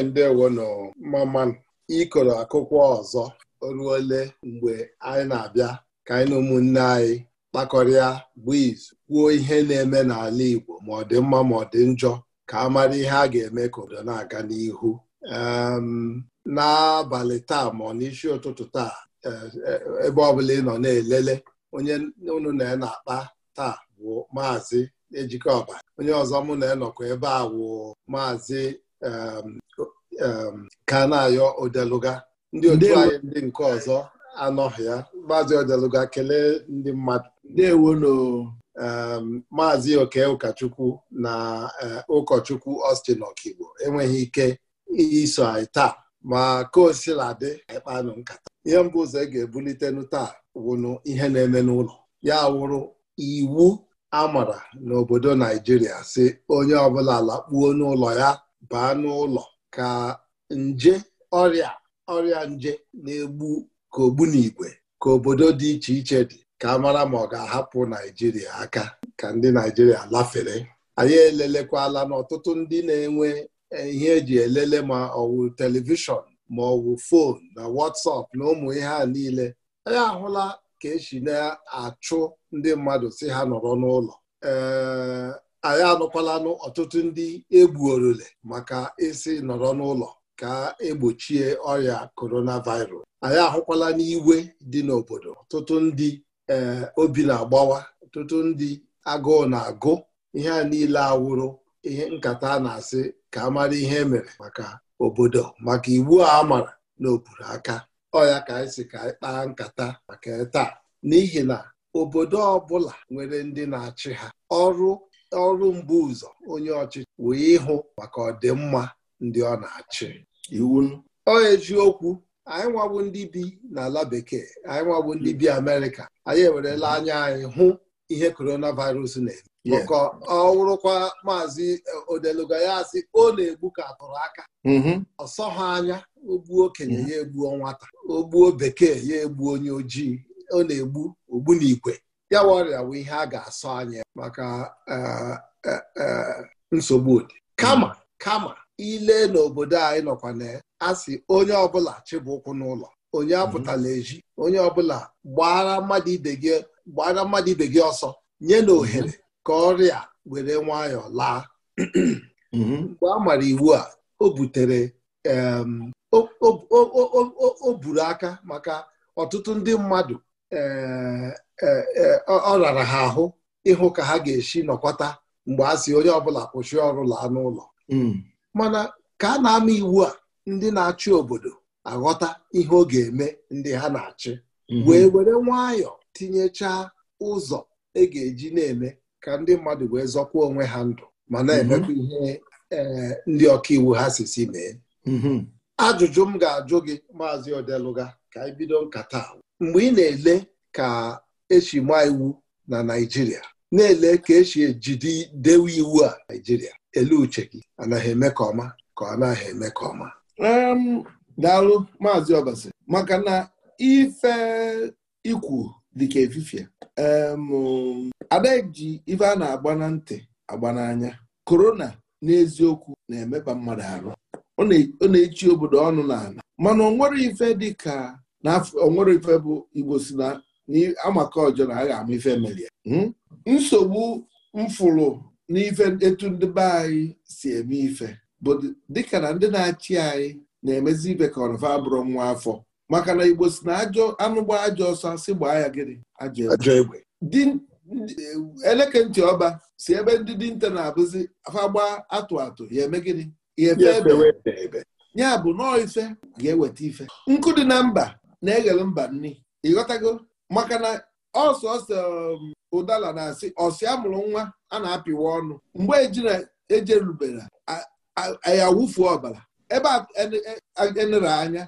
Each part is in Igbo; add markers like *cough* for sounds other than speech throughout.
anyị ewe nọ maman ịkọrọ akwụkwọ ọzọ ruole mgbe anyị na-abịa ka anyị na ụmụnne anyị kpakọrịa bụ izu kwuo ihe na-eme n'ala Igbo ma ọ dị mma ma ọ dị njọ ka a mara ihe a ga-eme ka obodo na-aga n'ihu n'abalị taa ma ọ n'isi ụtụtụ taa e, e, ebe ọbụla ị nọ na-elele onye unu na na-akpa taa bụ maazị Ejikeọba onye ọzọ mụ na-enọkwa ebe a wụ maazị Um, um, kana ayọ odeluga ndị otu anyị ndị nke ọzọ anọghị ya maazị odeluga kelee ndị mmadụ ndewono um, maazị oke ụkọchukwu na uh, ụkọchukwu Ọstin Okigbo enweghị ike iso anyị taa ma ka o sila dị ịkpanụ nkata ihe mbụ ụzọ e ga-ebulitenu taa wụnụ ihe na-eme n'ụlọ ya wụrụ iwu a mara n'obodo Naijiria si onye ọbụla lakpuo n'ụlọ ya baa n'ụlọ ka nje ọrịa ọrịa nje na-egbu ka ogbu ogbunigwe ka obodo dị iche iche dị ka a mara ma ọ ga-ahapụ Naijiria aka ka ndị Naijiria lafere anyị elelekwala na ọtụtụ ndị na-enwe eh, ihe eji elele ma ọwụ telivishọn ma ọwụ fon na WhatsApp na ụmụ ihe a niile anyị ahụla ka esi na-achụ ndị mmadụ si ha nọrọ n'ụlọ ee eh, anyị anụkwalanụ ọtụtụ ndị egbuorole maka isi nọrọ n'ụlọ ka egbochie ọrịa coronavirus anyị ahụkwala n'iwe dị n'obodo ọtụtụ ndị ee eh, obi na-agbawa ọtụtụ ndị agụụ na-agụ ihe a niile awụrụ ihe nkata na-asị ka amara ihe e mere maka obodo maka iwu a maara na aka ọya ka anyị si ka anyị kpaa nkata maka taa n'ihi na obodo ọbụla nwere ndị na-achị ha ọrụ ọrụ mbu ụzọ onye ọchịchị wee ịhụ maka ọdịmma ndị ọ na-achị iwu ọ eziokwu anyị nwabụ ndị bi n'ala bekee anyị nwabụ ndị bi Amerịka anyị ewerela anya anyị hụ ihe coronavirus na-eme maka ọ wụrụkwa maazị e, odeluga ya asị ọ na-egbu ka atụrụ aka mm-hmm. ọsọ ha anya ogbuo okenye ya egbuo nwata ogbuo bekee ya egbuo onye ojii ọ na-egbu ogbu na igwe ya bụ ọrịa bụ ihe a ga-asọ anya maka eh, eh, eh, nsogbu ụdị kama hmm. kama ile n'obodo anyị nọkwa na asị onye ọbụla chịbụ ụkwụ n'ụlọ onye hmm. apụtala eji onye ọbụla gbara mmadụ ibe gị gbara mmadụ ibe gị ọsọ nye na hmm. ohere ka ọrịa were nwayọọ laa mgbe a mara iwu a o butere o buru aka maka ọtụtụ ndị mmadụ ee E, ọ rara ha ahụ ịhụ ka ha ga-esi nọkọta mgbe a si onye ọbụla kwụsị ọrụ laa n'ụlọ hmm. mana ka a na-ama iwu a ndị na-achị obodo aghọta ihe ọ ga-eme ndị ha na-achị hmm. wee were nwayọọ tinyechaa ụzọ e ga-eji na-eme ka ndị mmadụ wee zọkwa onwe ha ndụ ma na-emekwa hmm. ihe e, ndị ọka iwu ha sisi mee ajụjụ m ga-ajụ gị maazị Odeluga ka anyị bido nkata mgbe ị na-ele ka esi maa iwu na Naijiria. na-ele ka esi ejide dewe iwu a Naijiria ele uche gị anaghị eme ka ọma ka ọ naghị eme ka ọma um, daalụ maazị Obasi maka na ife ikwu dịka efifie um, ada ji ife a na-agba na ntị agba n'anya korona n'eziokwu na-emeba mmadụ arụ ọ na-echi obodo ọnụ n'ala mana onwere ife dịka na onwere ife bụ Igbo si na amaka ọjọọ na a ama ya hmm? nsogbu mfụrụ n'ife etu ndị be anyị si eme ife bụ dịka na ndị na-achị anyị na-emezi ife ka ọrọfa abụrụ nwa afọ maka na igbo si na ajọ anụgba ajọ ọsọ si gbaa ya gịnị ajọ egbe eleke ntị ọba si ebe ndị dinta na-abụzi afa gbaa atụ atụ ya eme gịnị ya ebe ya bụ nọọ ife ga-eweta ife nkụ dị na mba na-eghele mba nni ịghọtago maka na ọsọsọ ụdala um, na-asị ọsị amụrụ nwa a na-apịwa ọnụ mgbe ejerubere ya wụfuo ọbara ebe enere e, e anya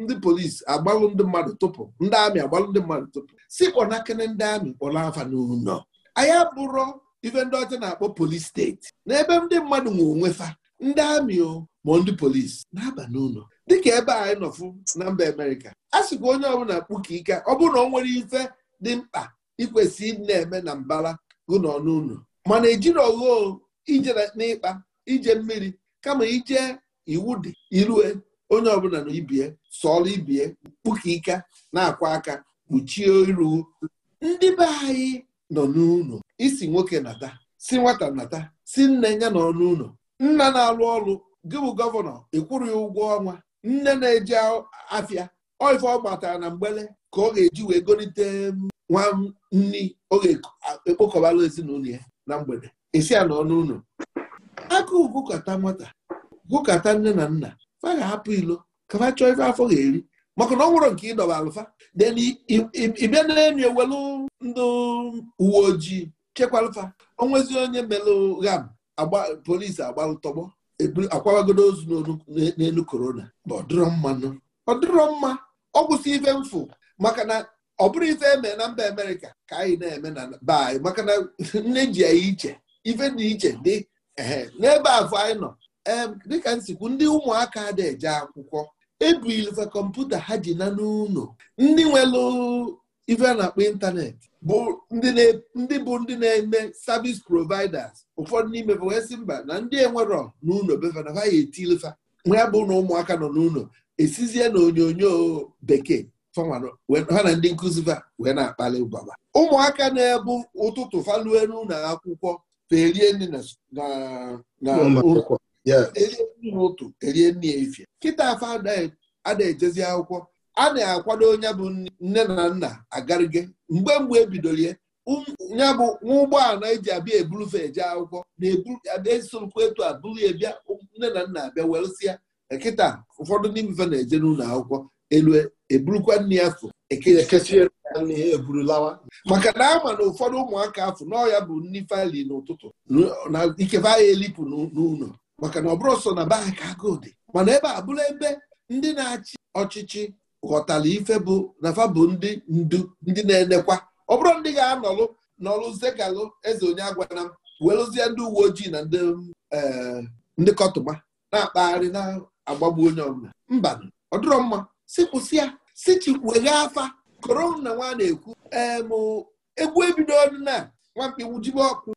ndị polisi agbalụ ndị mmadụ tụpụ ndị amị agbalụ ndị mmadụ tụpụ si kpọnakene ndị amị kpọrọ afa n'ụlọ anyị abụrọ ife ndị ọcha na-akpọ polisi steeti n'ebe ndị mmadụ nwe onwe fa ndị amị ma ndị polisi na-aba n'ụlọ dịka ebe anyị nọfụ na mba Amerịka a sịkwa onye ọbụla kpuka ike ọ bụrụ na ọ nwere ife dị mkpa ikwesị na-eme na mbara ọnụ n'ụlọ mana ejiri ogho ije n'ịkpa ije mmiri kama ije iwu dị irue onye ọbụla na ibie sọrọ ibie kpuka ike na-akwa aka kpuchie iru ndị be anyị nọ n'ụlọ isi nwoke nata si nwata nata si nne ya nọ n'ụlọ nna na-alụ ọrụ gị bụ gọvanọ ịkwụrụ ya ụgwọ ọnwa nne na-eji afịa oife ọ gbatara na mgbele ka ọ ga-eji wee golite nwa nni ọ ga-ekpokọbala ezinụlọ ya na mgbede esi ya n'ọnụ ụlọ aka gụkọta nwata gwukọta nne na nna fa ga-ahapụ ilo ka fa chọọ ife afọ ga-eri maka na ọ nwụrụ nke ịdọba alụfa den ịbịa na-emi ewelu ndị uwe ojii alụfa onwezi onye melụ gam polisi agba ntọgbọ akwagodo ozu n'elu korona ma ọ dịrọ mma ọ dịrọ mma ọ kwụsị ife mfụ maka na ọ bụrụ ife eme na mba amerịka ka anyị na-eme na be anyị maka na nne ji ya iche ife dị iche dị n'ebe afọ anyị nọ dịka nsikwu ndị ụmụaka dị eje akwụkwọ ebulfa kọmputa ha ji na n'ụlọ ndị nwere ife a na-akpọ ịntanetị bụ ndị bụ ndị na-eme sabis providers ụfọdụ n'ime bụ sị mba na ndị enwero n'ụlọ befanafa ya etilifa ya bụ na ụmụaka nọ n'ụlọ esizie na onyonyo bekee ha na ndị nkụzi fa wee na-akpali ụbaba ụmụaka na-ebu ụtụtụ falue n'ụlọ akwụkwọ ferie nri n'ụtụ erie nri ya efie kịta afa ada ejezi akwụkwọ a na-akwado onye bụ nne na nna agarige mgbe mgbe ebidolie um, ya bụ nwa ụgbọala eji abịa eburufe eje akwụkwọ na-esorokwa etu a bụrụ ya bịa um, nne na nna abịa welụsịa nkịta ụfọdụ ndị mfe na-eje n'ụlọ akwụkwọ elu eburukwa nne ya fụ maka na ama na ụfọdụ ụmụaka afụ ya bụ nni fali n'ụtụtụ na ikefe ahịa elipụ n'ụlọ maka na ọ bụrụ so na baa ka agụụ dị mana ebe a bụrụ ebe ndị na-achị ọchịchị ghọtara ife bụ nafa bụ ndị ndu ndị na-enekwa ọ bụrụ ndị ga-anọlụ zegalụ eze onye agwana m welụzie ndị uwe ojii na eh, ndị kọtụma na-akpagharị na-agbagbu onye ọbụla mba ọ dịrọ mma si kwụsị ya si chikwueghe afa korona nwa na-ekwu em egwu ebido na nwamkpi wujibe ọkụ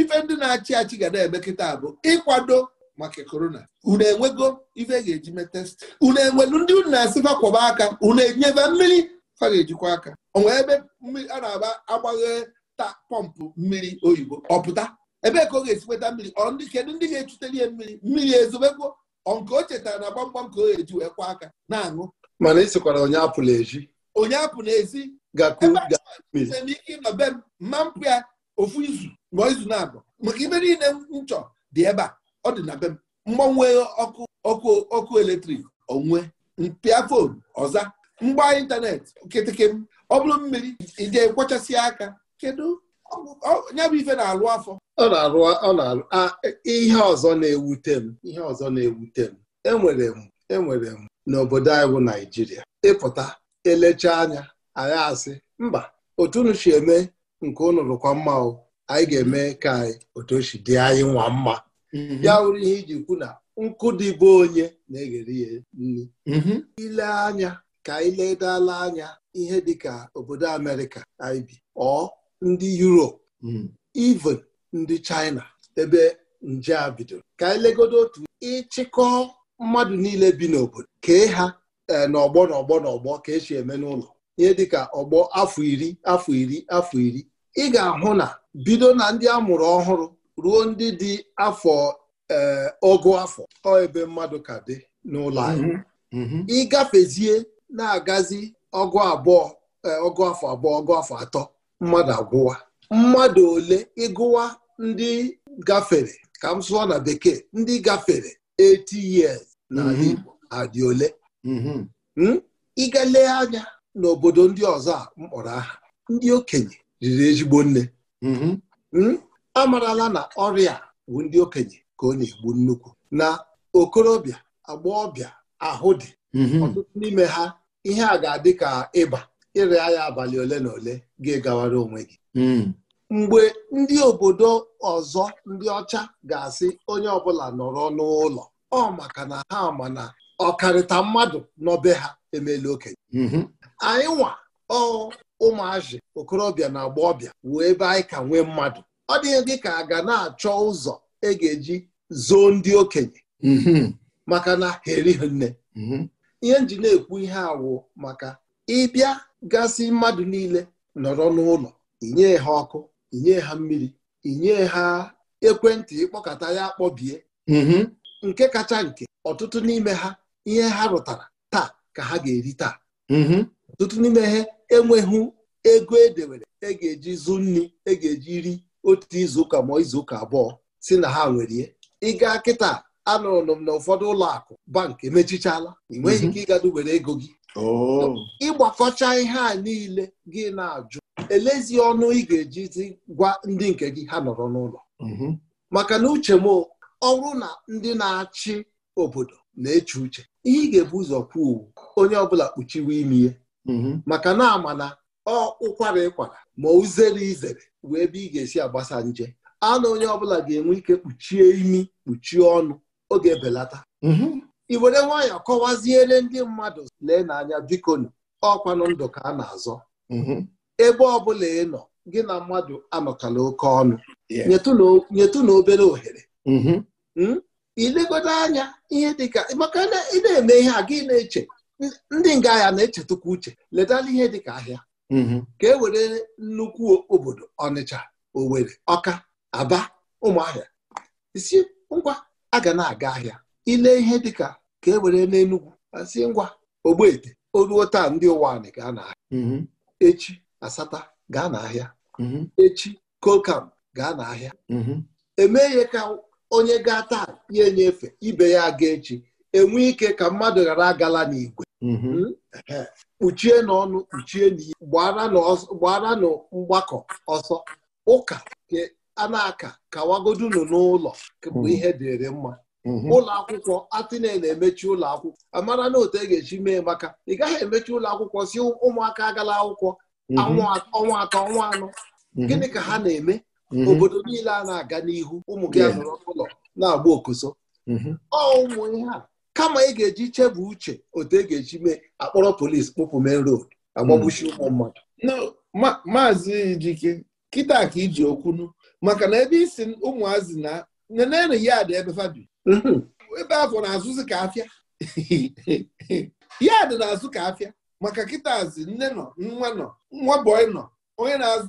ife ndị na-achị achị ga na-eme kịta bụ ịkwado maka korona unu enwego ife ga-eji mee test unu enwelu ndị unu na-asịfa kwọba aka unu enyebe mmiri fa ga-ejikwa aka onwe ebe a na-agba agbaghe ta pọmpụ mmiri oyibo ọpụta ebe ka ọ ga-esikweta mmiri ọ ndị kedu ndị ga-echuteli ihe mmiri mmiri ezobekwo nke o chetara na gbamgbam ka ọ ga-eji wee kwa aka na-aṅụ mana isikwara onye apụla ezi onye apụ n'ezi ebe ike ịnọ be m mma mpụ ya ofu izu ma izu na-abụ maka ibe niile m chọ dị ebe a ọ dị na be m mgbanwe ọkụ ọkụ ọkụ eletrik onwe mpịa fon ọza mgba ịntanetị kịtịkị m ọ bụrụ mmiri ije kwachasị aka kedu ya bụ ife na-alụ afọ ọ na-alụ ọ na-alụ ihe ọzọ na-ewute m ihe ọzọ na-ewute m enwere m enwere m n'obodo anyị bụ Naijiria ịpụta elecha anya anyị asị mba otu unu si eme nke unu lụkwa mma anyị ga-eme ka anyị otu o si dị anyị nwa mma Mhm. ya wụrụ ihe iji kwu na nkụ dị bụ onye na-eghere ya nri mhm. ile anya ka anyị ledala anya ihe dịka obodo Amerịka anyị bi ọ ndị Europe mhm. even ndị China ebe nje a bidoro ka ilegodo legodo otu ịchịkọ mmadụ niile bi n'obodo kee ha e, n'ọgbọ n'ọgbọ n'ọgbọ ka esi eme n'ụlọ ihe dịka ọgbọ afọ iri afọ iri afọ iri ị ga-ahụ na bido na ndị a mụrụ ọhụrụ ruo ndị dị afọ ọgụ e, afọ ọ ebe mmadụ ka dị n'ụlọ anyị mhm. mhm. ịgafezie na-agazi ọgụ abụọ ọgụ e, afọ abụọ ọgụ afọ atọ mmadụ agwụwa mmadụ ole ịgụwa ndị gafere ka m sụọ na bekee ndị gafere 80 years na mhm. Igbo adị ole hmm? ịga lee anya n'obodo ndị ọzọ a mkpọrọ aha ndị okenye riri ezigbo nne hmm? amarala na ọrịa bụ ndị okenye ka ọ na-egbu nnukwu na okorobịa agba ọbịa ahụ dị mhm. ọtụtụ n'ime ha ihe a ga-adị ka ịba ịrịa ya abalị ole na ole ga-egawara onwe gị mm. mgbe ndị obodo ọzọ ndị ọcha ga-asị onye ọbụla nọrọ n'ụlọ ọ maka na ha ma na ọkarịta mmadụ n'ọbe ha emela okenye mhm. anyị nwa ọ ụmụazị okorobịa na agba ọbịa ebe anyị ka nwee mmadụ ọ dịghị gị ka a ga na-achọ ụzọ e ga-eji zoo ndị okenye mhm. maka na ha nne mhm. ihe nji na-ekwu ihe awụ maka ịbịa gasị mmadụ niile nọrọ n'ụlọ inye ha ọkụ inye ha mmiri inye ha ekwentị ịkpọkọta ya akpọbie mhm. nke kacha nke ọtụtụ n'ime ha ihe ha rụtara taa ka ha ga-eri taa ọtụtụ n'ime ha enweghị ego edewere e ga-eji zụ nri e ga-eji ri otu izuụka ma izuụka abụọ si na ha nwere ịga kịta anụrụ m na ụfọdụ ụlọ akụ bank emechichala ị nweghị mhm. ike ịgado were ego gị oh. ịgbakọcha ihe a niile gị na-ajụ elezi ọnụ ị ga-ejizi gwa ndị nke gị ha nọrọ n'ụlọ mhm. maka na uche m ọrụ na ndị na-achị obodo na-eche uche ihe ị ga-ebu ụzọ kwuo onye ọbụla kpuchiwe imi ya mhm. maka na ama na ọ ụkwara ịkwara ma uzere izere wee ebe ị ga-esi agbasa nje anụ onye ọbụla ga-enwe ike kpuchie imi kpuchie ọnụ oge belata Ị mhm. were nwayọọ kọwaziere ndị mmadụ lee n'anya bikonu ọkwanụ ndụ ka a na-azọ mhm. ebe ọbụla ị nọ gị na mmadụ anọkala oke ọnụ nyetụ na obere ohere ilegodo mhm. hmm? anya ihe dịka maka ị na-eme ihe a gị na-eche ndị nga ya na-echetukwa uche letala ihe dịka ahịa Mm-hmm. ka e were nnukwu obodo Ọnịcha Owerri Ọka Aba Ụmụahịa isi ngwa aga na-aga ahịa ile ihe dịka ka e were n'Enugwu asị ngwa Ogbete oruo taa ndị ụwa anyị gaa n'ahịa mm-hmm. echi Asata gaa n'ahịa mm-hmm. echi Kokam gaa n'ahịa ihe ka onye gaa taa ya enyefe ibe ya aga echi enwe ike ka mmadụ ghara agala n'igwe kpuchie mm-hmm. hmm? n'ọnụ kpuchie n'ihe gbara na mgbakọ ọsọ ụka a na-aka kawagodunu n'ụlọ bụ mm-hmm. ihe dịrị mma mm-hmm. ụlọ akwụkwọ atịne na-emechi ụlọ akwụkwọ amara na otu e ga-echi mee maka ị gaghị emechi ụlọ akwụkwọ si ụmụaka agala akwụkwọ ọnwa atọ ọnwa anọ gịnị ka ha na-eme obodo niile a na-aga n'ihu ụmụ gị nọrọ n'ụlọ na-agba okoso ọ ụmụ ihe a kama ị ga-eji chebe uche otu e ga-eji mee akpọrọ polisi kpụpụ main road agbagbuchi hmm. ụmụ mmadụ maazị Ijike kịta ka iji okwunu maka na ebe isi ụmụazị na nenenu ya dị ebe fabi mhm. ebe afọ na-azụzi ka afịa *laughs* ya dị na-azụ ka afịa maka kịtazi nne nọ nwa nọ nwa bọị nọ onye na-azụ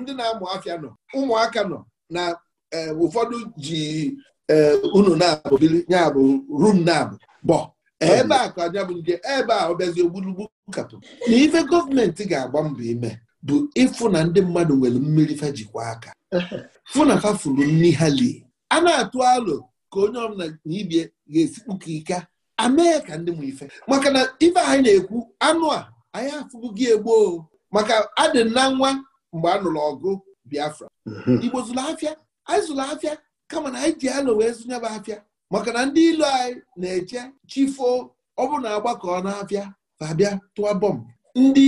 ndị na-amụ afịa nọ ụmụaka nọ na eh, ụfọdụ ji Eh, unu na-abụgili ya bụ rum na-abụ bọ ebe a ka anya bụ nje ebe a ọ bịazi ogbulugbu kapụ na ife gọọmenti ga-agba mbọ ime bụ ịfụ na ndị mmadụ nwere mmiri fa jikwa aka fụ na furu nri ha lie a na-atụ alo ka onye ọbụla na ibie ga-esikpuka ike amee ka ndị m ife maka na ife anyị na-ekwu anụ a anyị gị egboo maka adị na nwa mgbe a nụrụ ọgụ Biafra mhm. Igbo zụrụ afịa anyị zụrụ afịa kama na anyị ji alo wee zụnyebe afịa maka na ndị ilu anyị na-eche chifo ọ bụ na agbakọ n'afịa abịa tụọ bọmbụ ndị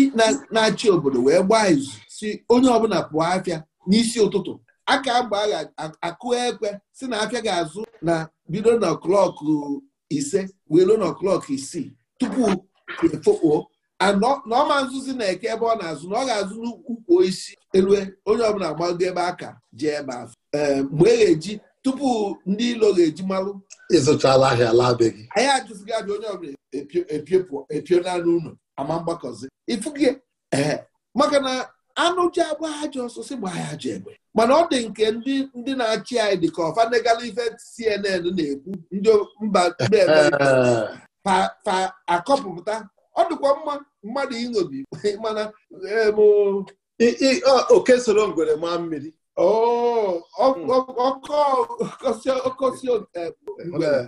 na-achị obodo wee gbaa izu si onye ọbụla pụọ afịa n'isi ụtụtụ aka mgbe a ga-akụ ekwe si na afịa ga-azụ na bido na klọkụ ise wee ruo na klọkụ isii tupu efokpuo na ọma nzuzi na-eke ebe ọ na-azụ na ọ ga-azụ n'ukwu isi elue onye ọbụla gbago ebe aka ji ebe afọ ehm, mgbe e ga-eji tupu ndị ilo ga-eji malụ ịzụchala ahịa ala be gị anyị ajụzighị ajụ onye ọbụla epio naanị ụlọ ama mgbakọzi ifuge ee maka na anụ ji agba ajọ ọsọsị gba ya ajọ egbe mana ọ dị nke ndị na-achị anyị dị ka ọfanegala ife CNN na-ekwu ndị mba pa akọpụta ọ dịkwa mma mmadụ iṅobi *laughs* mana oke soro ngwere maa mmiri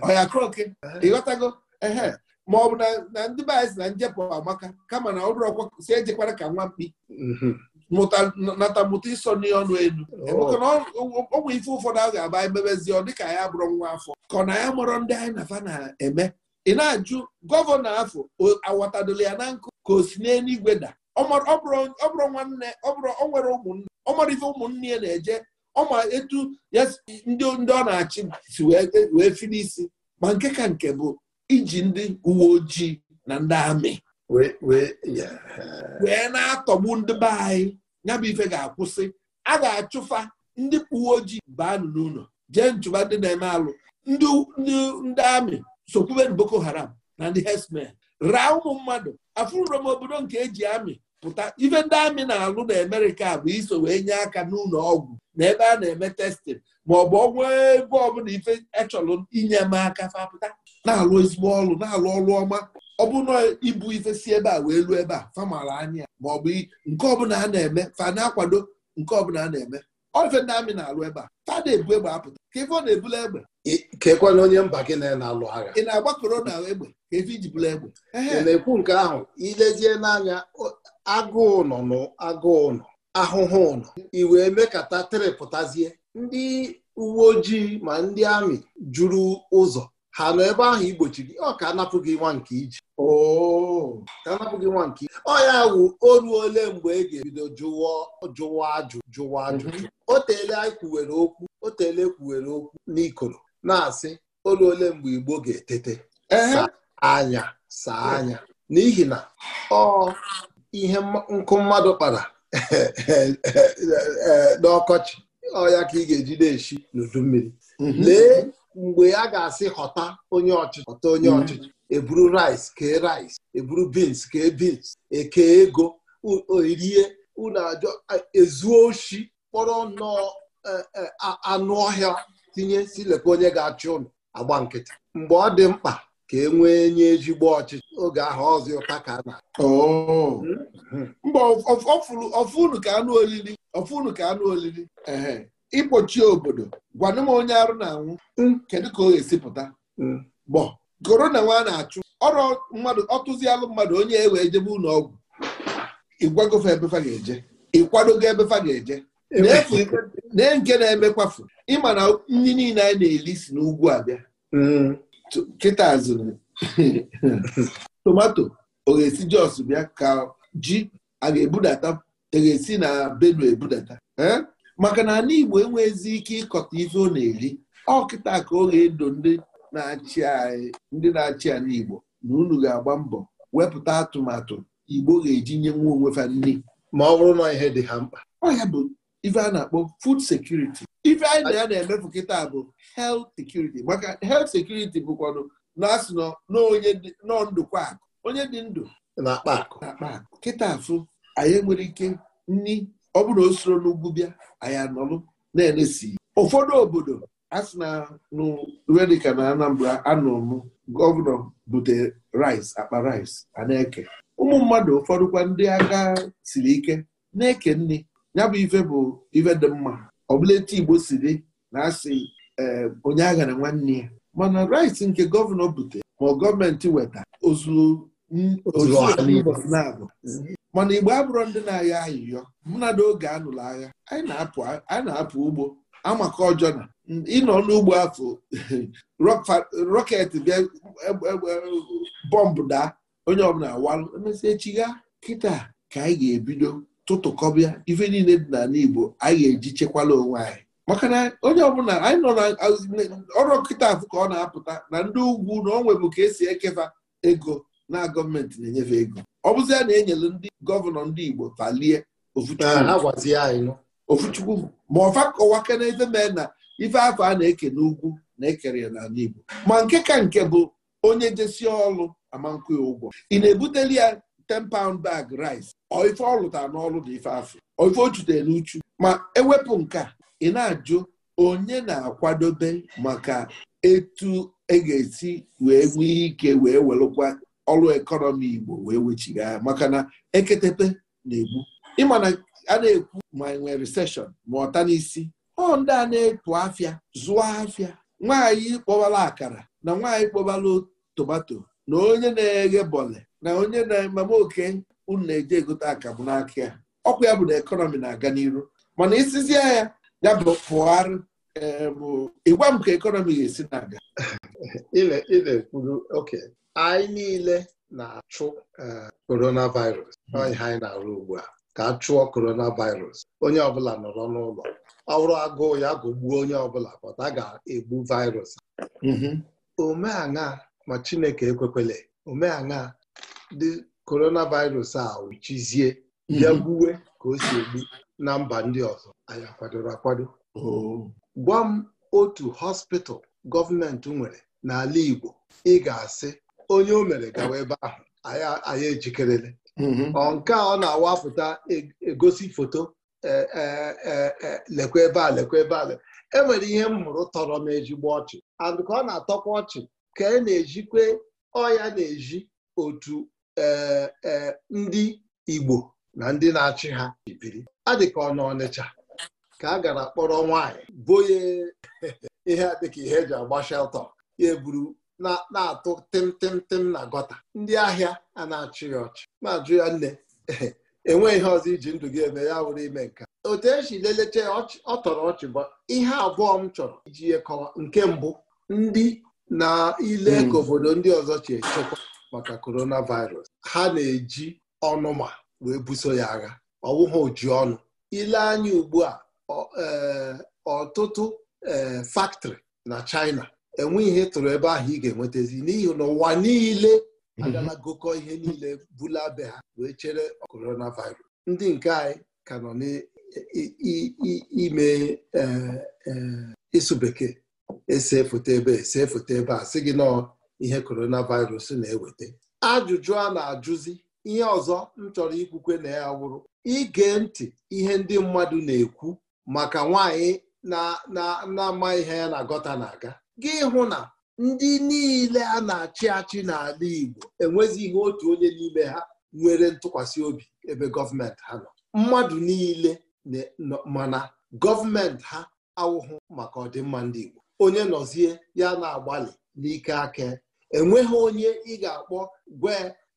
ọya kroke ịghọtago ehe ma ọ bụ na ndị be anyị si na njepụ amaka kama na ọ bụrụ ọkwa si ejekwara ka nwa mkpi mm-hmm. nata mụta ịsọ ọnụ elu oh. ọgwụ ife ụfọdụ ahụ ga-aba emebezi ọ dịka ya bụrụ nwa afọ ka ọ na ya mụrụ ndị anyị na fa na-eme ị na-ajụ gọvanọ afọ awọtadola ya na nkụ ka o si n'eluigwe da ọ bụrụ nwanne ọ bụrụ o nwere ụmụnne ọ ife ụmụnne ya na-eje ọma etu ya ndị ndị ọ na-achị si wee e, fili isi ma nke ka nke bụ iji ndị uwe ojii na ndị amị wee na-atọgbu ndị be anyị ya ife ga-akwụsị a ga-achụfa ndị uwe ojii baa n'ụlọ jee nchụba ndị na-eme alụ ndị amị sokwuberu boko haram na ndị herdsmen raa ụmụ mmadụ afụrụrom obodo nke eji amị pụta ife ndị amị na-alụ na amerịka bụ iso wee nye aka n'ụlọ ọgwụ na ebe a na-eme testin ma ọ bụ ọgwụ ebe ọbụla ife echọrọ inye m aka fapụta na-alụ ezigbo ọlụ na-alụ ọrụ ọma ọ bụ ibu ife si ebe a wee lụọ ebe a famara anya ma ọ bụ nke ọbụla a na-eme fa na-akwado nke ọbụla a na-eme ofe ndị amị na-alụ ebe a fada ebu egbe apụta ka ọ na-ebula egbe kekwana onye mba gị na-alụ agha ị na agba korona egbe ka ife iji bula egbe ị na-ekwu nke ahụ ilezie n'anya agụụ nọ n'agụụ nọ ahụhụ nọ i wee mekata trịpụtazie ndị uwe ojii ma ndị amị juru ụzọ ha nọ ebe ahụ igbochi gị ọ ka anapụ gị nwa nke iji oh. ka anapụ gị nwa nke ọ ya wụ oru ole mgbe e ga-ebido jụwa ajụ jụwa ajụ. Mhm. o teele anyị kwuwere okwu o teele kwuwere okwu n'ikoro na-asị oru ole mgbe igbo ga-etete saa anya saa anya n'ihi na ọ ihe nkụ mmadụ kpara *laughs* n'ọkọchị ọ ya ka ị ga-eji na-eshi n'udu mmiri mhm. lee mgbe ya ga-asị họta onye ọchịchị họta onye mm-hmm. ọchịchị eburu rice kee rice eburu beans kee beans ekee ego orie unu ajọ ezuo oshi kpọrọ nnọọ e, e, anụ ọhịa tinye silekwa onye ga-achị ụlọ agba nkịtị mgbe ọ dị mkpa ka e nwee nye ezigbo ọchịchị oge ahụ ọzọ ụta ka na oh. hmm? mba ọfụnụ ka anụ olili ọfụnụ ka anụ olili ịkpọchi obodo gwanụ m onye arụ na-anwụ mm. kedu ka ọ ga-esi pụta mm. bọ na nwa na-achụ ọrụ mmadụ ọtụzialụ mmadụ onye ewe ejebe ụlọ ọgwụ ịgwagofe ebefa ga-eje ịkwadogo ebefa ga-eje e na nke na-emekwafu ịma na ndị niile anyị na-eli si n'ugwu abịa mm. kịta zụrụ *laughs* tomato ọ ga-esi jos bịa ka ji a ga-ebudata a e ga-esi na benue ebudata maka na ala Igbo enweghịzi ike ịkọta ife ọ na-eri ọkịta ka ọ ga-edo ndị na-achị anyị ndị na-achị ala Igbo na unu ga-agba mbọ wepụta atụmatụ Igbo ga-eji nye nwa onwe fa nri ma ọ bụrụ na ihe dị ha mkpa ọhịa bụ ife a na-akpọ fud sekuriti, ife anyị na ya na-emefu kịta bụ health security maka health sekuriti bụkwanụ na-asị nọ ndụkwa akụ onye dị ndụ na-akpa akụ kịta afụ anyị nwere ike nri ọ bụrụ na o soro n'ugwu bịa anyị anọlụ na-enesi ụfọdụ obodo a sị na nụwe na Anambra anụrụ m gọvanọ bute rice akpa rice ana eke ụmụ mmadụ ụfọdụkwa ndị agha siri ike na-eke nne ya bụ ife bụ ife dị mma ọ etu Igbo si na asị e, onye aghara nwanne ya mana rice nke gọvanọ bute ma gọọmenti weta ozu na-abụ mana igbo abụrụ ndị na-agha ayịyọ mụna oge anụlụ agha anyị na-apụ ugbo amaka ọjọọ na ịnọ n'ugbo afọ *laughs* rọket bịa e, e, e, bọmbụ daa onye ọbụla awalụ emesị echi gha kịta ka anyị ga-ebido tụtụkọbịa ife niile dị na igbo anyị ga-eji chekwala onwe anyị maka na onye ọbụla anyị nọ ọrụ kịta afụ ka ọ na-apụta na ndị ugwu na o nwebụ ka esi ekefa ego na gọọmenti na-enyefe ego ọ bụzi ya na enyere ndị gọvanọ ndị Igbo talie ofuchukwu ah, ma ọfa kọwake na mee na ife afọ a na-eke n'ugwu na-ekere ya n'ala Igbo ma nke ka nke bụ onye jesi ọlụ amankwu ụgwọ ị na-ebuteli ya 10 pound bag rice ọ ife n'ọlụ dị ife afọ ọ ife n'uchu ma ewepụ nke a ị na-ajụ onye na-akwadobe maka etu e ga-esi wee nwee ike wee welụkwa ọrụ ekọnọmi Igbo wee ya maka na eketepe na-egbu ịma na a na-ekwu ma nwee reseshọn ma ọta n'isi ọ ndị a na ekpu afịa zụọ afịa nwaanyị kpọbala akara na nwaanyị kpọbala tomato na onye na-eghe bọle na onye na-ememe oke unu na eje egote akamụ n'aka ya ọkwa ya bụ na ekọnọmi na-aga n'iru mana isizie ya ya bụ pụgharị Ehm, ịgwa m ka ekọnọmi ga-esi na-aga na-ekwuru *laughs* oke anyị niile na-achụ eh, coronavirus hmm. ọha anyị na-arụ ugbu a ka a chụọ coronavirus onye ọbụla nọrọ n'ụlọ ọrụ agụụ ya gụgbuo onye ọbụla pọta ga-egbu virus mm-hmm. omeaṅa ma Chineke ekwekwele omeaṅa dị coronavirus a wuchizie ya mm-hmm. gbuwe ka o si egbu na mba ndị ọzọ anyị akwadoro akwado oh. gwa m otu hospital gọọmenti nwere n'ala Igbo ị ga-asị onye o mere gawa ebe ahụ anyị ejikerele mm-hmm. nke a ọ na awapụta e, egosi foto e, e, lekwa ebe a lekwa ebe a enwere ihe m hụrụ tọrọ m ejigbo ọchị and ka ọ na-atọkwa ọchị ka e na-ejikwe ọya na-eji otu ndị Igbo na ndị na-achị ha biri adị ka Ọnịcha ka a gara kpọrọ nwaanyị boye *laughs* ihe a dịka ihe eji agba sheltọ ya eburu na-atụ tịmtịmtịm na gọta ndị ahịa a na-achị ya ọchị ma jụ ya nne *laughs* enweghị ihe ọzọ iji ndụ gị eme ya wụrụ ime nka otu esi lelecha ọ tọrọ ọchị bụ ihe abụọ m chọrọ iji yekọwa nke mbụ ndị na ile ka hmm. obodo ndị ọzọ chi echekwa maka coronavirus ha na-eji ọnụma wee buso ya agha ọ ha oji ọnụ ile anya ugbu a Eh, ọtụtụ eh, faktọrị na China enwe ihe tụrụ ebe ahụ ị ga-enwetazi n'ihi na ụwa niile mhm. agala gokọ ihe niile bula be ha wee chere coronavirus ndị nke anyị ka nọ n'ime eh, ịsụ bekee ese foto ebe ese foto ebe a sị gị nọ ihe coronavirus na-eweta ajụjụ a na-ajụzi ihe ọzọ m chọrọ ikwukwe na ya wụrụ ige ntị ihe ndị mmadụ na-ekwu maka nwanyị na-ama ihe ya na gọta na-aga gị hụ na ndị niile a na-achị achị n'ala Igbo ihe otu onye n'ime ha nwere ntụkwasị obi ebe gọọmenti ha nọ mmadụ niile mana gọọmenti ha awụhụ maka ọdịmma ndị Igbo onye nọzie ya na-agbalị n'ike aka enweghị onye ị ga-akpọ gwe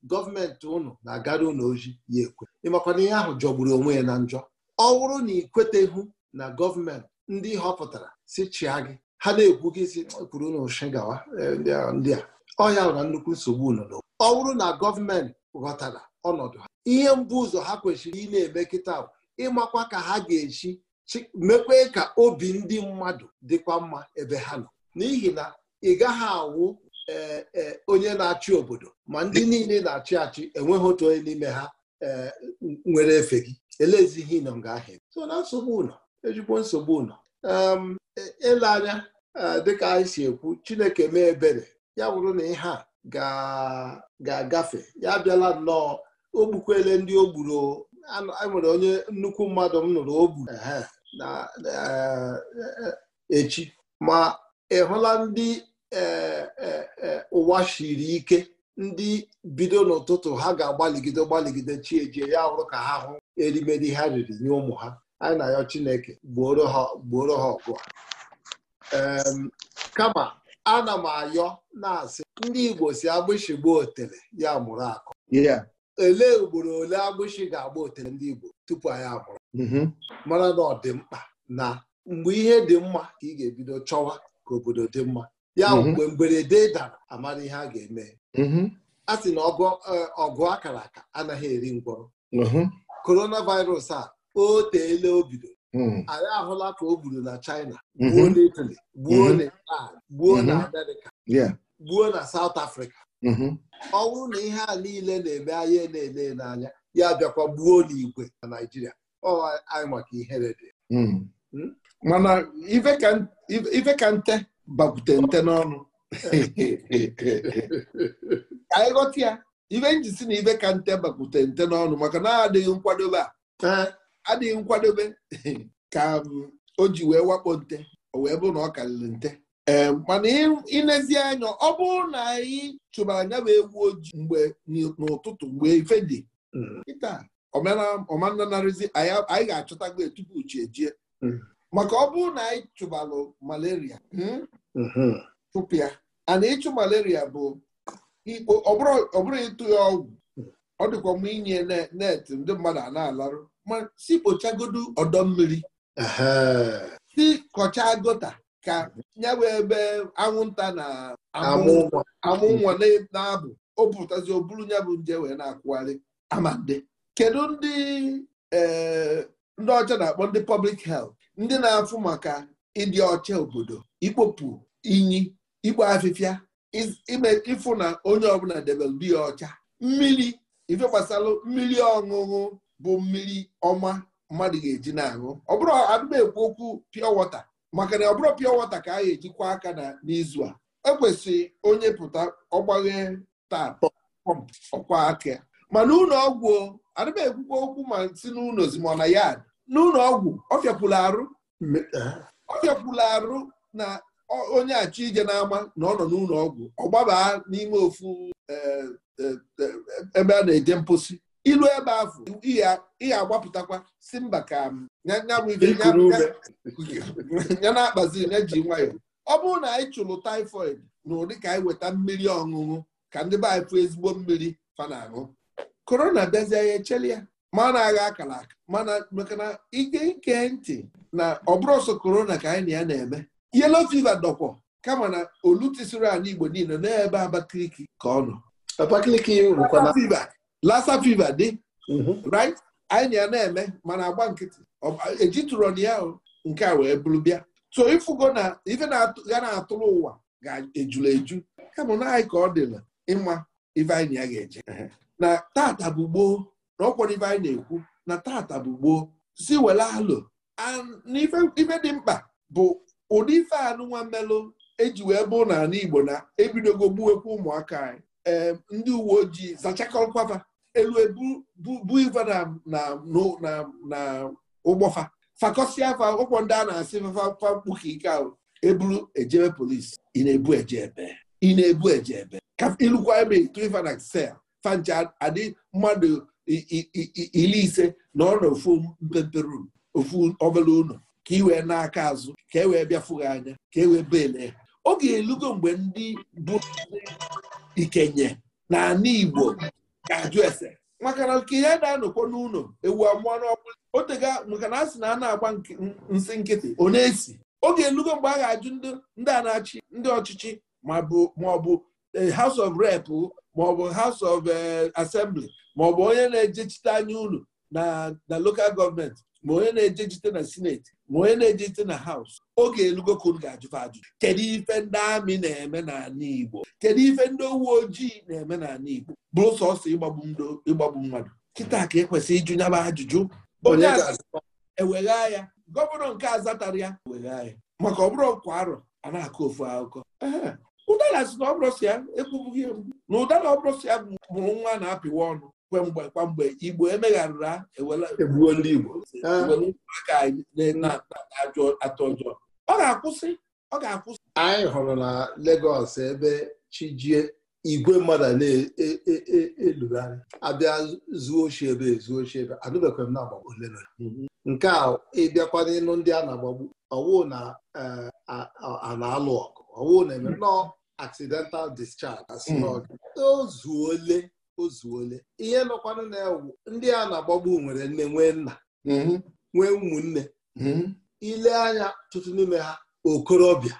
gọọmenti ụnụ na-agara ụnụ ya ekwe ịmakwana ihe ahụ jọgburu onwe ya na njọ ọ bụrụ na ị na gọọmenti ndị họpụtara si chịa gị ha na-ekwu gị si kwuru n'ụshi gawa e, ndị a ọhịa na nnukwu nsogbu nọ ọ bụrụ na gọọmenti ghọtara ọnọdụ ha ihe mbụ ụzọ ha kwesịrị ị na-eme kịta ịmakwa ka ha ga-echi mekwe ka obi ndị mmadụ dịkwa mma ebe ha nọ n'ihi na ị gaghị awụ e, e, onye na-achị obodo ma ndị niile na-achị achị enweghị otu onye n'ime ha nwere efe gị elezighị nọ nga ahịa so na nsogbu ụlọ ejikwa nsogbu nọ ele anya dịka anyị si ekwu Chineke mee ebere ya wụrụ na ihe a ga-agafe ya bịala nnọọ o gbukwele ndị o gburu e nwere onye nnukwu mmadụ m nụrụ o gburu na e, e, echi ma ị hụla ndị ụwa shiri ike ndị bido n'ụtụtụ ha ga-agbaligide gbaligide chi ya wụrụ ka ha hụ erimeri ha riri nye ụmụ ha anyị na-ayọ Chineke gbuoro ha ọgụ kama ana m ayọ na-asị ndị Igbo si agbụshị gbuo otele ya mụrụ akụ olee ugboro ole agbụshị ga-agba otele ndị Igbo tupu anyị amụrụ mm-hmm. mara na ọ dị mkpa na mgbe ihe dị mma ka ị ga-ebido chọwa ka obodo dị mma ya mm-hmm. mgbe mberede dara amara ihe a ga-eme mm-hmm. a sị na ọgụ eh, akara aka anaghị eri ngwọrọ coronavirus a o teela o bido hmm. anyị ahụla ka o gburu na China mhm. gbuo na Italy gbuo mhm. na Iran gbuo na mhm. Amerịka gbuo na South Africa ọ bụrụ na ihe a niile na-eme anyị na-ele n'anya ya bịakwa gbuo igwe na Naijiria ọ anyị maka ihere dị hmm. Hmm? mana ife ka nte bakwute nte n'ọnụ anyị ghọta ya ife njisi na ife ka nte bakwute nte n'ọnụ maka na adịghị nkwadobe a adịghị nkwadobe ka um, o ji wee wakpo nte o wee bụrụ na ọ karịrị nte ee um, mana ịnezi anya ọ bụrụ na anyị chụbara anya bụ egwu ojii mgbe n'ụtụtụ mgbe ife dị hmm. ịta ọmananarịzi anyị ga-achọtago tupu chi ejie hmm. maka ọ bụrụ na anyị chụbalụ malaria hmm, chụpụ ya ana ịchụ malaria bụ ikpo ọ bụrụ ịtụ ya ọgwụ ọ dịkwa mma inye net ndị mmadụ a na-alarụ ma si kpochagodu ọdọ mmiri si kọchaa gota ka nyawe ebe anwụnta na amụ nwa na-abụ o pụtazi o buru nya bụ nje wee na-akwụgharị amande kedu ndị eh, ndị ọcha na-akpọ ndị pọblik helt ndị na-afụ maka ịdị ọcha obodo ikpopụ inyi igba afịfịa ịfụ na onye ọbụla debere dị ya ọcha mmiri ife gbasara mmiri ọṅụṅụ bụ mmiri ọma mmadụ ga-eji na-aṅụ ọ bụrụ adịba ekwu okwu pịọ wọta maka na ọ bụrụ pịọ wọta ka a ga-ejikwa aka na n'izu a ekwesị onye pụta ọgbaghe taa ọkwa aka mana ụlọ ọgwụ adịba ekwukwa okwu ma si n'ụlọ zimọna yad n'ụlọ ọgwụ ọfịapụla arụ e? ọfịapụla arụ na onye achọ ije n'ama na ọ nọ n'ụlọọgwụ ọgwụ ọ gbaba n'ime ofu e, e, ebe a na-eje mposi ilu ebe afụ ihe agbapụtakwa si mba ka um, ya na-akpazi na-eji nwayọọ ọ bụrụ na anyị chụrụ typhoid na ụdị ka anyị weta mmiri ọṅụṅụ ka ndị be anyị fụ ezigbo mmiri fa na-aṅụ korona bịazie ya echeli ya ma na-agha akara aka mana maka na ike ike ntị na ọ bụrụ ọsọ korona ka anyị na ya na-eme yelo fiva dọkwọ kama na olutisiri ala Igbo niile n'ebe Abakaliki ka ọ nọ lassa fiva dị mhm. right anyị ya na-eme mana agba nkịtị ejitụrọ na ya nke a wee bụrụ bịa so ifugo na ife ga na-atụrụ ụwa ga-ejula eju kama na anyị ka ọ dịla ịma ife anyị ya ga-eje mhm. na tata bụ gboo na ife anyị na-ekwu na tata bụ gboo si were alụ ife dị mkpa bụ ụdị ife anụnwa mmelụ eji wee bụ n'ala Igbo na ebidogo gbuwekwu ụmụaka anyị ee ndị uwe ojii zachakọkwaba elu ebu bụ na ụgbọfa fakọsịa afa ụkwọ ndị a na-asị fafa mkpuke ike ahụ eburu ejebe polisi ị na-ebu eje ebe ị na-ebu eje ebe ka ilukwa ebe ife na sel fancha adị mmadụ iri ise na ọ na ofu mpempe ofu obere ụlọ ka ị wee n'aka azụ ka e wee bịa fụghị anya ka e wee oge elugo mgbe ndị bụ ikenye na ana Igbo ga-ajụ ese maka na nke ya na-anọkwa n'ụlọ ewu amụọ n'ọkpụla otega maka na a sị na a na-agba nsị nkịtị ọ na-esi oge elugo mgbe a ga-ajụ ndị a na-achị ndị ọchịchị ma ọ bụ eh, House of Rep ma ọ bụ House of eh, Assembly ma ọ bụ onye na-ejechite anya ụlọ na local gọọmenti ma onye na-ejechite na sineti ma onye na-ejezi na haus oge elugokun ga-ajụfa ajụjụ kedu ife ndị amị na-eme n'ala Igbo kedu ife ndị uwe ojii na-eme n'ala Igbo bụrụ sọsọ ịgbagbu mmadụ kịta ka ekwesị ịjụ nyaba ajụjụ onye ewegha ya gọvanọ nke zatara ya ewegha ya maka bụrụ kwa arọ a na-akọ ofu akụkọ ụdara si na ọbụrụ si ya ekwubughị na ụdara ọbụrụ si ya mụrụ nwa na-apịwa ọnụ kwemgbe kwamgbe igbo emegharịra egbuo ndị igbo ah. atụ ọjọọ ọ ga-akwụsị ọ ga-akwụsị anyị hụrụ na Lagos ebe chijie igwe mmadụ na-elugharị e, e, e, abịa zuo ochi ebe ezuo ochi ebe adụbekwa m na agbagbo ole na mhm. nke a ịbịakwa n'ịnụ ndị a na-agbagbu ọwụ na eh, a na-alụ ọgụ ọwụ na-eme mhm. nọọ accidental discharge mhm. o zuole o zuole ihe nọkwanụ na-ewu ndị a na-agbagbu nwere nne nwee nna mhm. nwee ụmụnne mhm. ile anya tụtụ n'ime ha okorobịa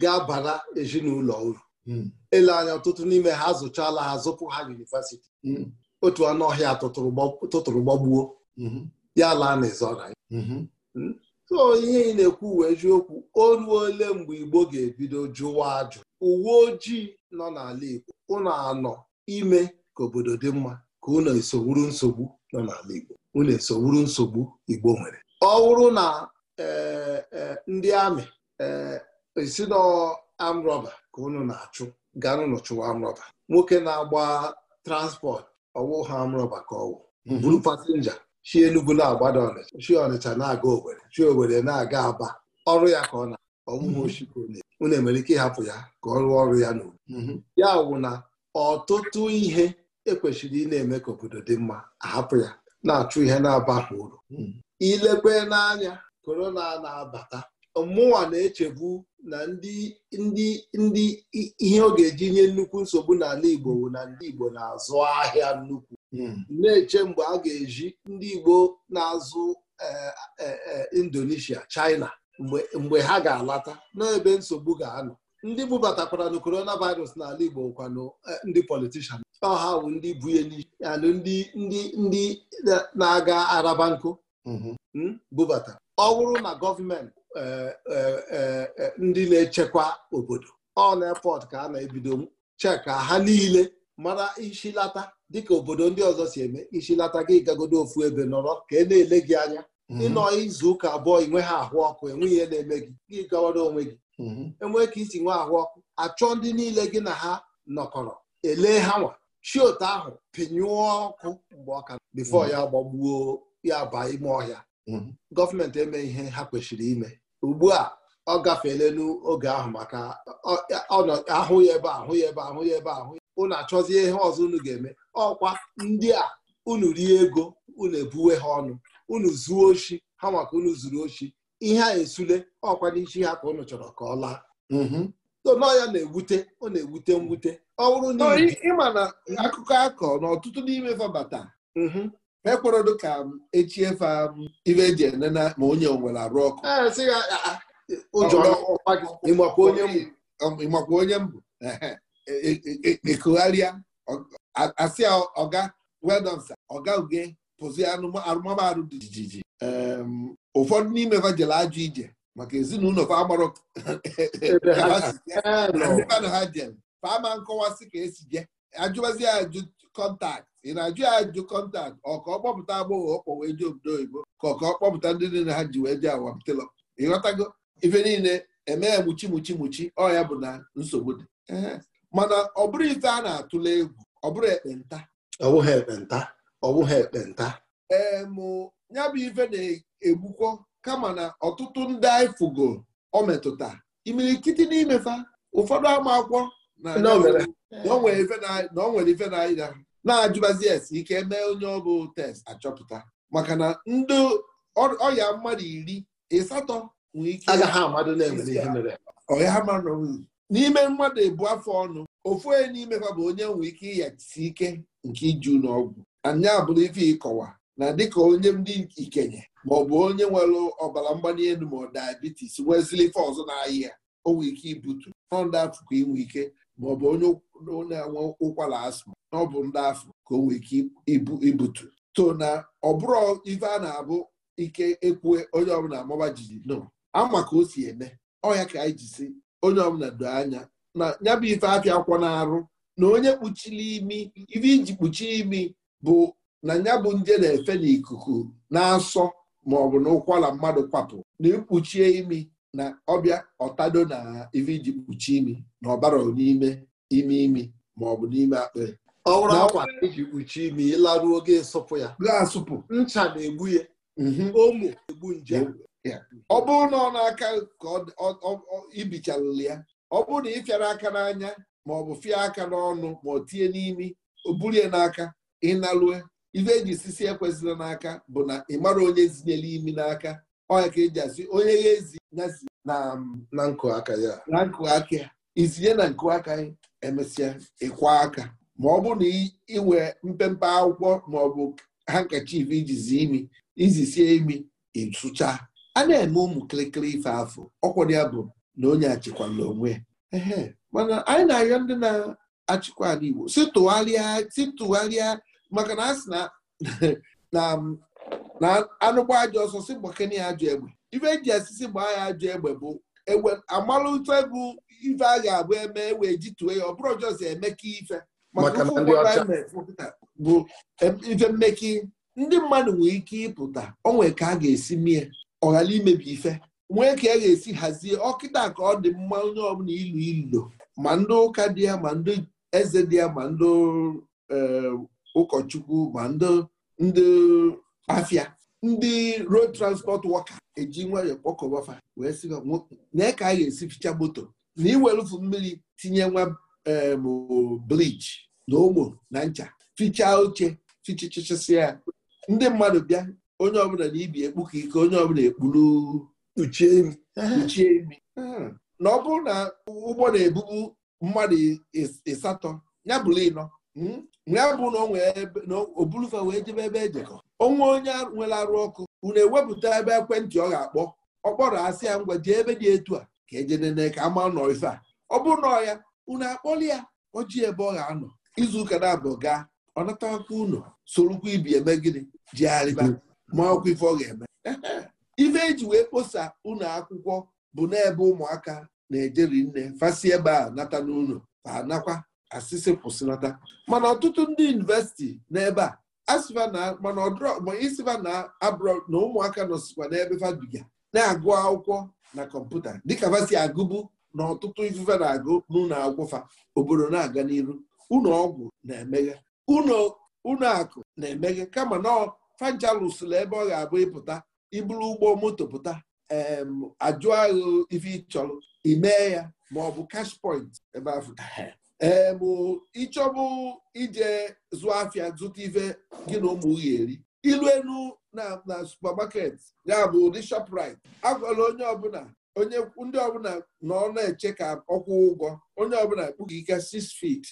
ga-abara ezinụlọ uru ele mhm. anya ọtụtụ n'ime ha azụchala ha zụpụ ha yunivasiti otu anụ ọhịa tụtụrụ gbagbuo ya laa n'ịzọra hmm? so ihe ị na-ekwu uwe eziokwu oru ole mgbe Igbo ga-ebido jụwa ajụ uwe ojii nọ n'ala Igbo ụnụ anọ ime ka obodo dị mma ka unu esogburu nsogbu nọ n'ala Igbo unu esogburu nsogbu Igbo nwere ọ wụrụ na eh, eh, ndị amị eh, esi n'amrọba ka unu na-achụ n'ụlọ chụwa amrọba nwoke na-agba transport ọwụ ha amrọba ka ọwụ mhm. buru pasenja chi enugwu na-agbada Ọnịcha chi Ọnịcha na-aga Owerri chi Owerri na-aga Aba ọrụ ya ka ọ na ọmụmụ mhm. ochikonye unu enwere ike ịhapụ ya ka ọ rụọ ọrụ ya n'obodo mhm. ya wụ na ọtụtụ ihe ekwesịrị ị na-eme ka obodo dị mma ahapụ ya na-achụ ihe na-abaghị uru ilekwe n'anya korona na-abata mụnwa na-echebu na ndị ndị ndị ihe ọ ga-eji nye nnukwu nsogbu n'ala Igbo bụ na ndị Igbo na-azụ ahịa nnukwu na-eche mgbe a ga-eji ndị Igbo na-azụ eh, eh, eh, Indonesia China mgbe ha ga-alata n'ebe nsogbu ga-anọ ndị bubatakwara na coronavirus n'ala Igbo kwanụ ndị politishan ọha bụ ndị bu ya n'isi ndị ndị ndị na-aga araba nkụ mhm. hmm, bubata ọ bụrụ na gọọmenti e, e, e, ndị na-echekwa obodo ọ na efọt ka a na-ebido cheka ha niile mara ishilata dịka obodo ndị ọzọ si eme ishilata gị gagodo ofu ebe nọrọ ka e na-ele gị anya mhm. ịnọ izu ụka abụọ inwe ha ahụ ọkụ enweghị ihe na-eme gị gị gawara onwe gị mhm. enwee ka isi nwe ahụ ọkụ achọ ndị niile gị na ha nọkọrọ elee ha nwa chioto ahụ pinyụọ ọkụ mgbe ọka bifo mm. ya gbagbuo ya baa ime ọhịa mm. gọọmenti eme ihe ha kwesịrị ime ugbu a ọ gafeela n'oge ahụ maka ahụ ya ebe ahụ ya ebe ahụ ya ebe ahụ unu achọzie ihe ọzọ unu ga-eme ọkwa ndị a unu rie ego unu ebuwe ha ọnụ unu zuo ochi ha maka unu zuru ochi ihe a esule ọkwa n'isi ha ka unu chọrọ ka ọ laa mm-hmm. so ya na-ewute ọ na-ewute mwute ọ bụrụ na ịma na akụkọ akọ mm-hmm. um, um, e na ọtụtụ n'ime fabata ekwerodo ka echie fa ibe eji enena ma onye onwere arụ ọkụ ịmakwa onye mbụ ekogharịa asị ọga wedọnsa oga uge pụzi arụmarụ dị jijiji ụfọdụ n'ime fa jere ajụ ije maka ezinụlọ fa amarọ ha jem fama nkọwasị ka esi je ajụbazi ajụ kọntakt ị na-ajụ ya ajụ kọntaktị ọka ọkpọpụta agbọghọ ọ kpọwee ji obodo oyibo ka ọ ọkpọpụta ndị niile ha ji wee ji awamtelọ ịghọtago ife niile eme ya muchi muchi muchi ọ ya bụ na nsogbu dị mana ọ bụrụ ife a na-atụle egwu ọ bụrụ ekpenta ọ ekpenta ọ ekpenta ee mụ ya bụ ife na-egbukwo kama na ọtụtụ ndị anyị fugo ọ metụta imirikiti n'imefa ụfọdụ ama akwụkwọ na nwere ife na-anya na-ajụbazi esi ike mee onye bụ test achọpụta maka na ndị ọya mmadụ iri ịsatọ ike mmadụ n'ime mmadụ ebu afọ ọnụ ofu onye n'ime ha bụ onye nwee ike ịyachisi ike nke iju n'ọgwụ anya abụrụ ife ịkọwa na dịka onye ndị ikenye ma ọ bụ onye nwere ọbara mgbali elu ma ọ diabetes nwezili ife ọzọ na ahịa o nwee ike ibutu nọndị afụkọ inwe ike maọbụ onye na-enwe ụkwara asma na ọ bụ ndị afọ ka o nwee ike ibutu so na ọ bụrụ ife a na-abụ ike ekwu onye ọbụla amaba jijiji no ama ka o si eme ọya ka anyị ji onye ọbụla doo anya na ya bụ ife apịa akwọ na-arụ na onye kpuchiri imi ife iji kpuchie imi bụ na ya bụ nje na-efe n'ikuku na-asọ maọbụ na ụkwara mmadụ kwapụ na ikpuchie imi na ọbịa ọtado na ife iji kpuchie imi na ọbara n'ime ime imi ma ọ bụ n'ime akpa ọ akwa iji kpuchie imi ịlaruo oge ịsụpụ ya asụpụ ncha na-egbu ya mhm. omo egbu nje ọ bụrụ na ọ na-aka ka ibichalụla ya ọ bụrụ na ị fịara aka n'anya ma ọ bụ fịa aka n'ọnụ ma ọ tinye n'imi o buru ya n'aka ịnalue ife eji sisi ekwesịla n'aka bụ na ị mara onye zinyere imi n'aka ọ ya ka eji asị onye ya ezi Um, na nkụ aka ya na nkụ aka ya itinye na nkụ aka emesịa ịkwa aka ma ọ bụ na iwe mpempe akwụkwọ ma ọ bụ hankachif ijizi imi iji sie imi ịsụcha a na-eme ụmụ kịrịkịrị ife afọ ọkwado ya bụ na onye achịkwala onwe ehe mana anyị na-arịọ ndị na-achịkwa ala Igbo si tụgharịa maka na a sị na *laughs* um, anụkwa ajọ ọsọ si mgbakene ya ajọ egbe ife eji esisi gbaa ya ajọ egbe bụ egbe amalụtụ egwu ife a ga-abụ eme wee jituo ya ọ bụrụ ọjọọ emeka ife maka bụ ife mmeki ndị mmadụ nwere ike ịpụta onwee ka a ga-esi mie ọ ghara imebi ife nwee ka a e ga-esi hazie ọkịta ka ọ dị mma onye ọbụla ilu ilo ma ndị ụka dị ya ma ndị eze dị ya ma ndị eh, ụkọchukwu ma ndị afịa ndị road transport wọka eji nwayọọ kpọkọbafa wee sị na ka a ga-esi ficha moto na iwelufu mmiri tinye nwa bleach na ụmụ na ncha ficha oche fichichichisi ya ndị mmadụ bịa onye ọbụla na ibi ekpuka ike onye ọbụla ekpuru kpuchie imi na ọ bụrụ na ụgbọ na-ebubu mmadụ ịsatọ ya bụrụ ịnọ hmm, ya bụ na o bulufa wee jebe ebe ejekọ onwe onye nwere arụ ọkụ unu ewepụta ebe ekwentị ọ ga-akpọ ọ kpọrọ asị ya ngwa jee ebe dị etu a ka ejenene ka ama nọ ife a ọ bụrụ na ọya ya unu akpọli ya oji ebe ọ ga-anọ izu ụka na-abụ gaa ọ natakwa unu sorokwa ibi eme gịnị jigharịba ma ife ọ ga-eme *laughs* ife eji wee kposa unu akwụkwọ bụ n'ebe ụmụaka na-ejeri nne fasi ebe a nata n'ụlọ fa anakwa asịsị kwụsịnata mana ọtụtụ ndị yunivesiti n'ebe a asịva mana ọdụisiva na abroad na ụmụaka nọsikwa n'ebe fabiga na-agụ akwụkwọ na kọmputa dịka vasi agụbụ na ọtụtụ ifufe na-agụ n'ụlọ akwụkwọ obodo na-aga n'iru ụlọ ọgwụ na-emeghe ụlọ akụ na-emeghe kama na fajalụsụla ebe ọ ga-abụ ịpụta iburu ụgbọ moto pụta ajụ agha ife ịchọrọ imee ya ma ọ bụ cash ebe afọ ee bụ ịchọbụ ije zụọ afịa zụta ife gị na ụmụ gị eri ilu enu na na supamaket ya bụ ụdị shoprite agwala onye ọbụla onye ndị ọbụla na na-eche ka ọkwụ ụgwọ onye ọbụla kpughị ike 6 feet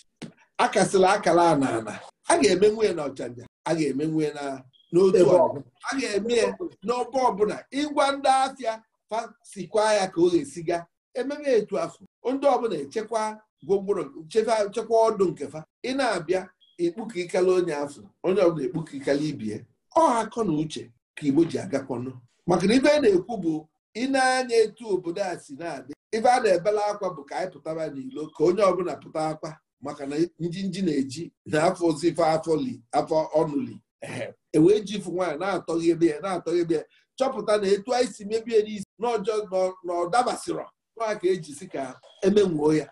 akasịla akala ana ana a ga-eme nwunye na ọchanja a ga-eme nwunye na n'otu a ga-eme n'ọba ọbụla ịgwa ndị afịa fasikwa ya ka o ga-esiga ememe etu afọ ndị ọbụla echekwa gwongworo chekwa ọdụ nke fa ị na-abịa ekpuka ikala onye afọ onye ọbụla ekpuka ikala ibie ọ akọ na uche ka igbo ji agakọnụ maka na ibe a na-ekwu bụ ị na-anya etu obodo a si na-adị ibe a na-ebela akwa bụ ka anyị pụtara n'ilo ka onye ọbụla pụta akwa maka na nji na-eji na afọ ozife afọ ọnụli e ji ifu nwaanyị na-atọghebe ya na-atọghebe ya chọpụta na etu anyị si mebie n'isi n'ọjọọ na ọ dabasịrọ nwa ka eji si ka emenwuo ya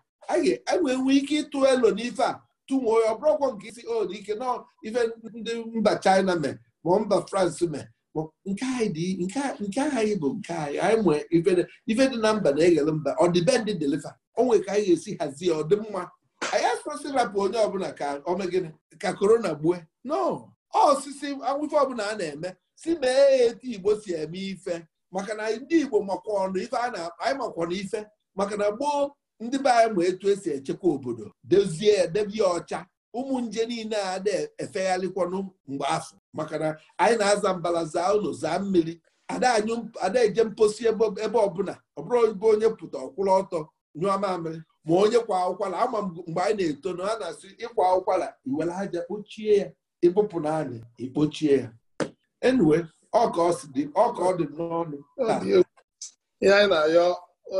enwee nwee ike ịtụ elo n'ife a tụnwe ọ bụrụkwọ nke isi o ike nọ ife ndị mba China mee ma mba France mee nke anyị nke anyị bụ nke anyị anyị nwee ife dị na mba na-eghele mba ọ dịbendị deliva onwe ka anyị ga-esi hazie mma anyị asịsị rapụ onye ọbụla ka omegịnị ka korona gbue no osisi awụfe ọbụla a na-eme si mee ya etu igbo si eme ife maka na ndị igbo makwa ọnụ ife a na anyị makwa na ife maka na gboo ndị be anyị ma etu esi echekwa obodo dozie edebe ya ọcha ụmụ nje niile a na-efegharịkwanụ mgbe afọ maka na anyị na-aza mbala zaa ụlọ zaa mmiri ada eje mposi ebe ọbụla ọbụrụ onye pụta ọkwụrụ ọtọ nyụọ mamịrị ma onye kwa ụkwara ama mgbe anyị na-eto na a na-asị ịkwa ụkwara iwere aja kpochie ya ịbụpụ n'anị anyị ikpochie ya enwe ọka ọ dị n'ọnụ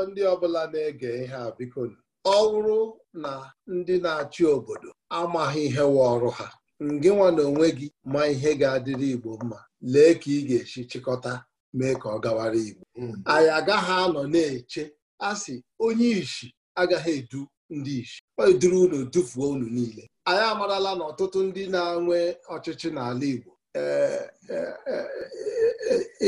ndị ọbụla na-ege ihe a biko ọ bụrụ na ndị na-achị obodo amaghị ihe wa ọrụ ha ngị nwa na onwe gị ma ihe ga-adịrị Igbo mma lee ka ị ga-esi chịkọta mee ka ọ gawara Igbo hmm. anyị agaghị anọ na-eche a sị onye ishi agaghị edu ndị ishi eduru unu dufuo unu niile anyị amarala na ọtụtụ ndị na-enwe ọchịchị n'ala Igbo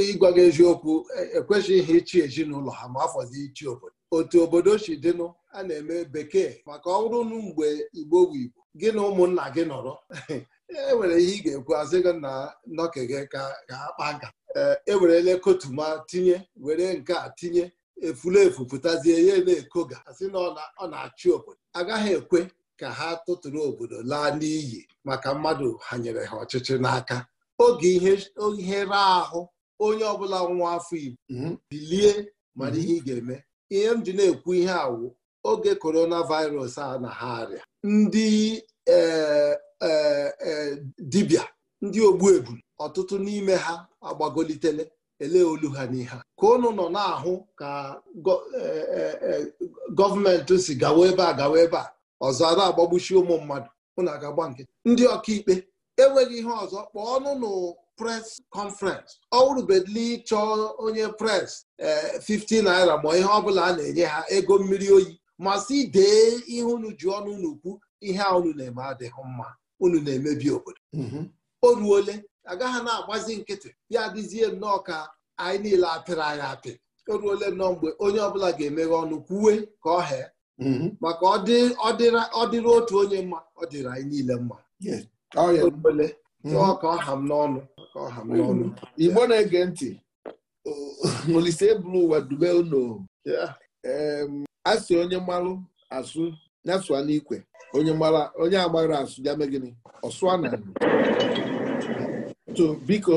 ịgwa gị eziokwu ekwesịghị ichi ezinụlọ ha ma afọzi ichi obodo otu obodo si dịnụ a na-eme bekee maka ọrụ nụ mgbe igbo bụ igbo gị na ụmụnna gị nọrọ e nwere ihe ị ga-ekwu asị gị na nọke gị ka akpa nka ewerele e kotuma tinye were nke a tinye efulefu pụtazie ya na-ekoga asị na ọ na-achị obodo agaghị ekwe ka ha tụtụrụ obodo laa n'iyi maka mmadụ ha nyere ha ọchịchị n'aka oge ihe ra ahụ onye ọbụla nwa afọ igbo mhm. bilie mara mhm. ihe ị ga-eme ihe m ji na-ekwu ihe awụ oge korona virus a na ha arịa ndị e, e, e, dibịa ndị ogbu egwu ọtụtụ n'ime ha agbagolitele ele olu ha n'ihe ka ụnụ nọ na-ahụ ka gọọmenti si gawa ebe a gawa ebe a ọzọ ara agbagbuchi ụmụ mmadụ ụnụ aga agba nke ndị ọkaikpe enweghị ihe ọzọ kpọọ ọnụ pres kọnferens ọ bedli chọọ onye pres 50 eh, naira ma ihe ọbụla a na-enye ha ego mmiri oyi masị dee ihe unu ji ọnụ unu kwu ihe a unu na-eme adịghị mma unu na-emebi obodo mhm. o ruole agaghị na-agbazi nkịtị ya dịzie nnọọ ka anyị niile apịrị anyị apị o ruole nnọọ mgbe onye ọbụla ga-emeghe ọnụ kwuwe ka ọ hee mhm. maka ọ dịrị otu onye mma ọ dịrị anyị niile mma ọka ọha m n'ọnụ ọha m n'ọnụ mm-hmm. igbo na-ege ntị oh, *laughs* Olise bụrụ ụwa dube unu asị onye mmalụ asụ nyasụa n'ikwe onye agbara asụ ya mee gịnị ọsụa na to biko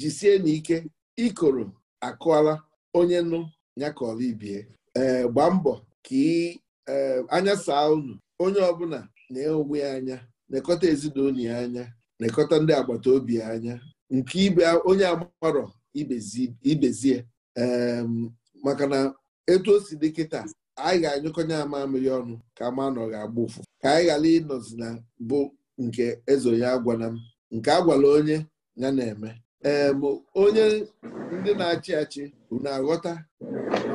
jisie ike ikoro akụọla onye nụ ya ka ọla ibie e, gbaa mbọ ka e, anya saa unu onye ọbụla na-enwe anya nekọta ezinụlọ ya anya nekọta ndị agbata obi anya nke ibe onye agbarọ ibezie maka na etu o si dị kịta anyị ga-anyụkọnye ya ọnụ ka ma nọ ga-agba ụfụ ka anyị ghara ịnọzi na bụ nke eze ya agwala m nke agwala onye ya na-eme ee onye ndị na-achị achị unu aghọta na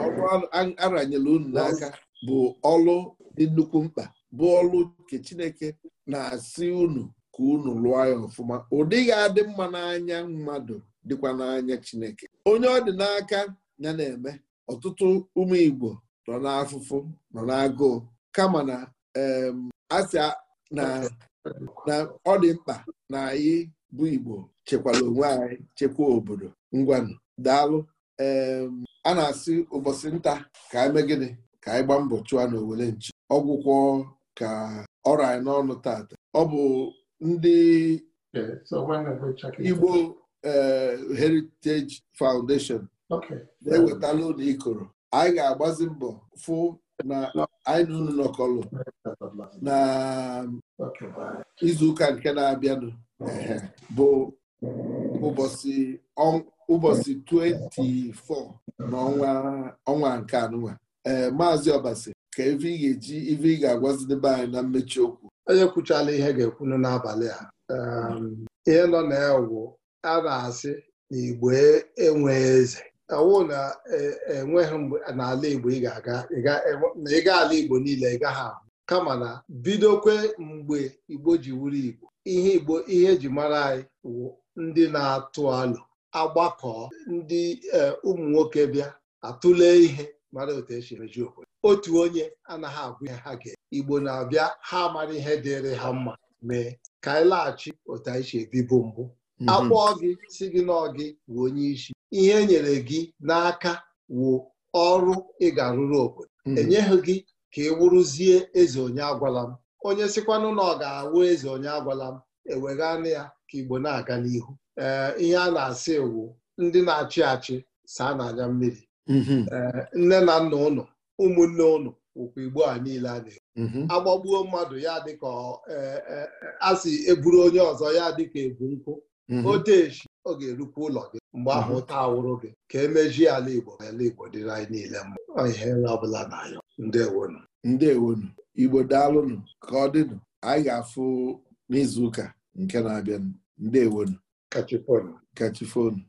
ọrụ unu n'aka bụ ọlụ dị nnukwu mkpa bụ ọlụ nke Chineke na-asị unu ka unu lụọ ya ọfụma Ụdịghị adị mma n'anya mmadụ dịkwa n'anya Chineke onye ọ dị n'aka ya na-eme ọtụtụ ụmụ Igbo nọ n'afụfụ nọ n'agụụ kama na asị na ọ dị mkpa na anyị bụ Igbo chekwala onwe anyị chekwa obodo ngwanụ daalụ a na-asị ụbọchị nta ka anyị e megide ka anyị gbaa mbọ chụa na owele nchi ọgwụkwọ ka ọrụ anyị n'ọnụ taata ọ bụ ndị Igbo eh, Heritage Foundation na-ewetala ụlọ ikoro anyị ga-agbazi mbọ fụ na anyị na unu nọkọlụ na izuụka nke na-abịanụ bụ ụbọchị 24 n'ọnwa nke anụnwa ee eh, maazị Ọbasi ka ebe ị ga-eji ibe ị ga-agwazidebe anyị na mmechi okwu onye kwuchala ihe ga-ekwunu n'abalị a um, ihe nọ na ya a na-asị na Igbo e, enweghị eze ọwụ na enweghị e mgbe n'ala Igbo ị ga-aga e, na ịga ala Igbo niile ị gaghị ahụ kama na bidokwe mgbe Igbo ji wuru Igbo ihe Igbo ihe eji mara anyị wụ ndị na-atụ alụ agbakọ ndị ụmụ nwoke bịa atụle ihe mara otu esi emeji obodo otu onye anaghị agwụ ya ha ga igbo na-abịa ha amara ihe dịrị ha mma mee ka anyị laghachi otu anyị si ebibo mbụ mhm. akpọọ gị si gị na ọgị onye isi ihe e nyere gị n'aka wụ ọrụ ị ga-arụrụ obodo mhm. enyeghị gị ka ị wụrụzie eze onye agwala m onye sikwanụ na ọ ga-awụ eze onye agwala m eweghanụ ya ka igbo na-aga n'ihu ee ihe a na-asị wụ ndị na-achị achị saa n'anya mmiri mhm. nne na nna ụlọ ụmụnne unu. okwu igbo a niile a na-ekwu mhm. agbagbuo mmadụ ya dịka e, e, asị eburu onye ọzọ ya dịka ebu nkụ mhm. otechi ọ ga erukwa ụlọ gị mgbe ahụ mhm. taa awụrụ gị ka emeji ala igbo ala igbo dịrị anyị niile mma ihe ọbụla na ya ndewonu ndewonu igbo daalụnụ ka ọ dịnụ anyị ga-afụ n'izu ụka nke na-abịanụ ndewonu kachifonu kachifonu